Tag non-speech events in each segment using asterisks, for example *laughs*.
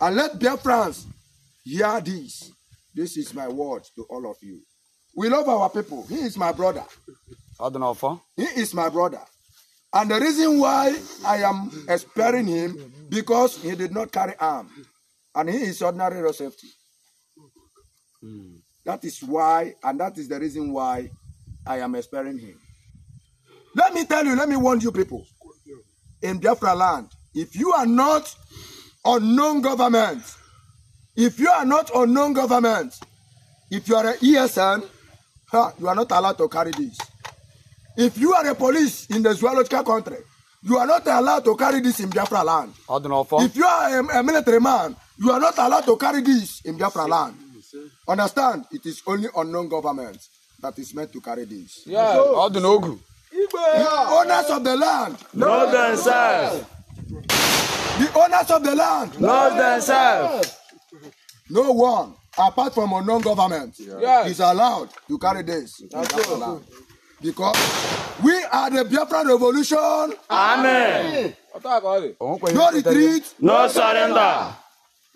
And let Biafrans hear this. This is my word to all of you. We love our people. He is my brother. I don't know for. He is my brother. And the reason why I am sparing him, because he did not carry arm. And he is ordinary safety. Mm. That is why, and that is the reason why I am sparing him. Let me tell you, let me warn you people. In Biafra land, if you are not unknown government. If you are not unknown government, if you are an ESN, huh, you are not allowed to carry this. If you are a police in the zoological country, you are not allowed to carry this in Biafra land. Adonofo. If you are a, a military man, you are not allowed to carry this in Biafra land. Understand? It is only unknown government that is meant to carry this. Yeah, so, Odunogu. Yeah. Owners of the land. Know themselves. The owners of the land love themselves. No one, apart from non government, yeah. is allowed to carry this. That's That's because we are the Biafran revolution. Amen. No retreat. No surrender.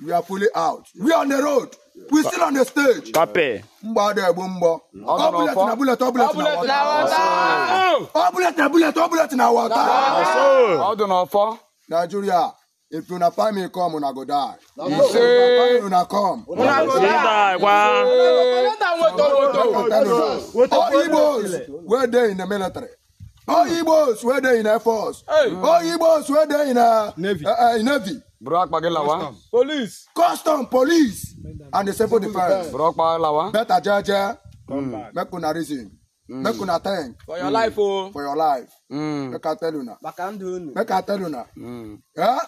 We are fully out. We are on the road. We still on the stage. Pape. Mbade bumbo. Obulet na bullet, obulet na water. Obulet na bullet, obulet na water. do Ọdún ọ̀fọ́. Nigeria. If una find me come, una go die. He say, una come. Una go die. Why? All Igbos were there in the military. All Igbos were there in the Air Force. All Igbos were there in the Navy. Navy. Brock Pagelawa. Police. Custom, police. And the civil defence. defense. Brock Pagelawa. Better judge. Make una reason. Mm. make una thank for your life o oh. for your life make i tell una make i tell una mm. yeah?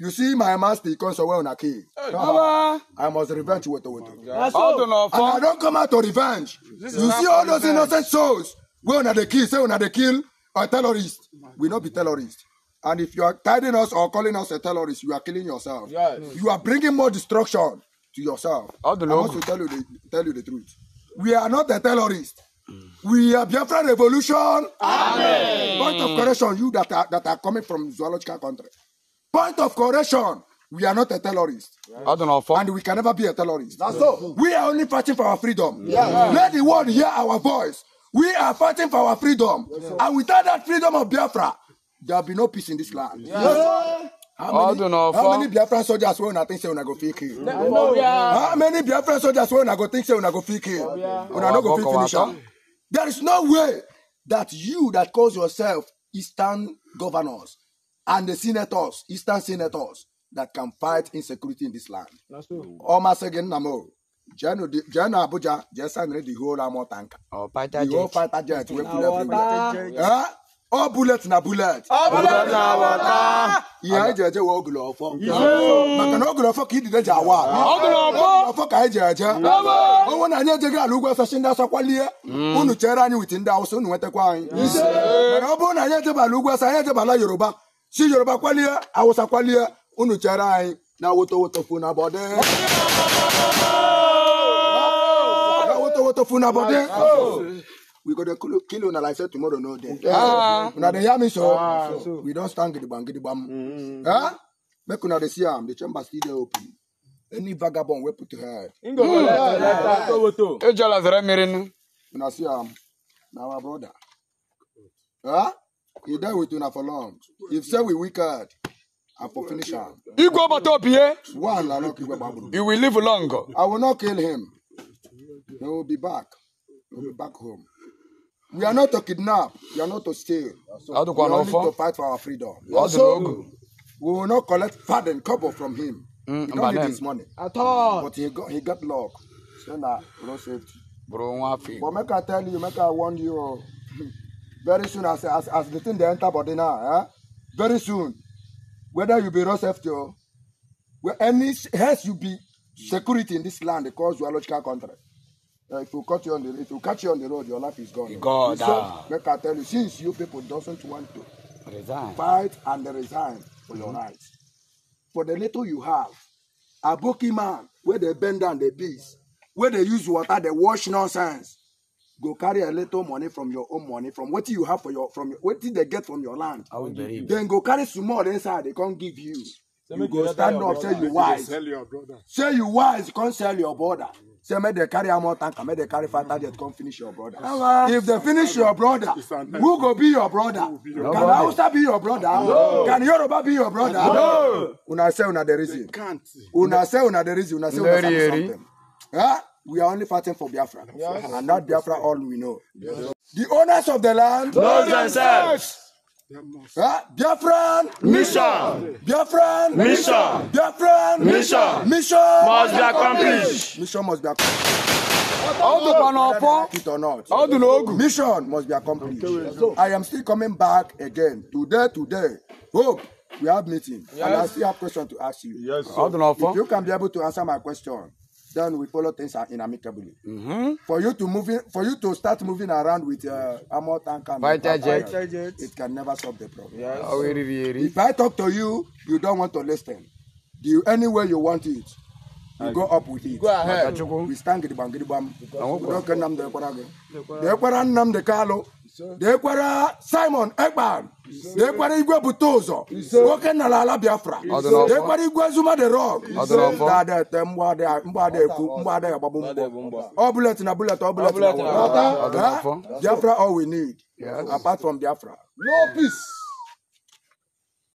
You see my master comes away on a key. I must revenge with the widow. Oh And I don't come out to revenge. you see all those innocent souls. We on the kill, say on the kill a terrorist. We not be terrorists. And if you are guiding us or calling us a terrorist, you are killing yourself. Yes. You are bringing more destruction to yourself. I want to tell you the, tell you the truth. We are not a terrorist. We are Biafra revolution. Amen. Point of correction, you that are, that are coming from zoological country. Point of correction. We are not a terrorist. Yes. And we can never be a terrorist. yes. so. We are only fighting for our freedom. Yes. Let the world hear our voice. We are fighting for our freedom. and without that freedom of Biafra, there will be no peace in this land. How many, how many Biafran soldiers will not think say una go fit kill? How many Biafran soldiers will not go think say una go fit kill? Una no go fit finish am. There is no way that you that calls yourself Eastern governors and the senators, eastern senators, that can fight insecurity in this land. Almost again, Namo. general Abuja just send the whole armor tank. Oh, fighter jet. The whole fighter jet. We put everywhere. All oh, bullets na bullet. All oh, bullets na water. Ihe eji eje wa ogolo ọfọ. Maka na ogolo ọfọ ka ị dide ji awa. Ogolo ọfọ. ọfọ ka anyị ji eje. Onwe na anyị ejeghị ala ugwu ọsọsị ndị ọsọ kwalie. Mm. Unu chere anyị wit ndị Awụsa unu nwetakwa anyị. Mana ọ bụrụ na anyị ejeba ala ugwu ọsọ anyị ejebala Yoruba. si yoruba kwalie awụsa kwalie unu chere anyị na wotowotofu na bọdị wotowotofu na bọdị we go dey kill una like say tomorrow no dey ah. una dey hear me so ah, we don stand gidigbam gidigbam mm. eh make una dey see am the chamber still dey open any vagabond wey put head mm. ejola zere mmiri nu una see am na our brother eh He died with una for long. If say we wicked, and for finish am. Igwe ọbata opi ye. One I no kill Igwe You will live longer. I will not kill him. He will be back. He will be back home. We are not to kidnap. We are not to steal. So we are only to fight for our freedom. Also, we will not collect faden couple from him. Mm, he don't need his money. At all. But he got, he got luck. So now, nah, no safety. Bro, But make I tell you, make I warn you. Oh. *laughs* very soon as as as the thing they enter body now eh? very soon whether you be raw safety or well, any has you be security in this land because you are logical country. Uh, eh, if you cut you on the if you catch you on the road, your life is gone. God, so, make I tell you, since you people doesn't want to resign. fight and resign for mm-hmm. your rights, for the little you have, a bookie man where they bend down the beast, where they use water, they wash nonsense go carry a little money from your own money from what you have for your from what did they get from your land then go carry some more inside they can't give you so you go stand up say you wise Sell your brother. say you wise Can't sell your brother say make they carry am more tanker make they carry five target come finish your brother if they finish your brother who go be your brother can hausa be your brother no. can yoruba be your brother no. una say una the reason una say una the reason una say una sabi something. Huh? We are only fighting for Biafra. Yes. And not Biafra all we know. Yes. The owners of the land know themselves. Uh, Biafran mission. Biafran mission. Biafran mission. Mission must be accomplished. Mission must be accomplished. How All the banapa, it or not. How do you logo. Mission must be accomplished. I am still coming back again today. Today, hope we have meeting, yes. and I still have question to ask you. Yes. Sir. If you can be able to answer my question then we follow things in amicably. Mm-hmm. For you to move in, for you to start moving around with uh, armor tank and fighter jet, it can never solve the problem. Yes. So, if I talk to you, you don't want to listen. Do you, anywhere you want it, you go up with it. Go ahead. We stand gidibam gidibam. We don't condemn the Ekwara. The Ekwara nam the Kalo. deekwara simon ekpan deekwara igwe bute ụzọ nwoke nara ala biafra deekwara igwe zuma de rok dadete mgbadekwu mgbada agbagbu mgbọ ọ bulet na bulet ọ bulet biafra all we need apart from biafra no peace